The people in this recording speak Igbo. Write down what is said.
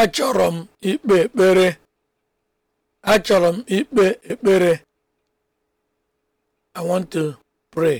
achọrọ m ikpe ekpere achọrọ m ikpe ekpere i want to pray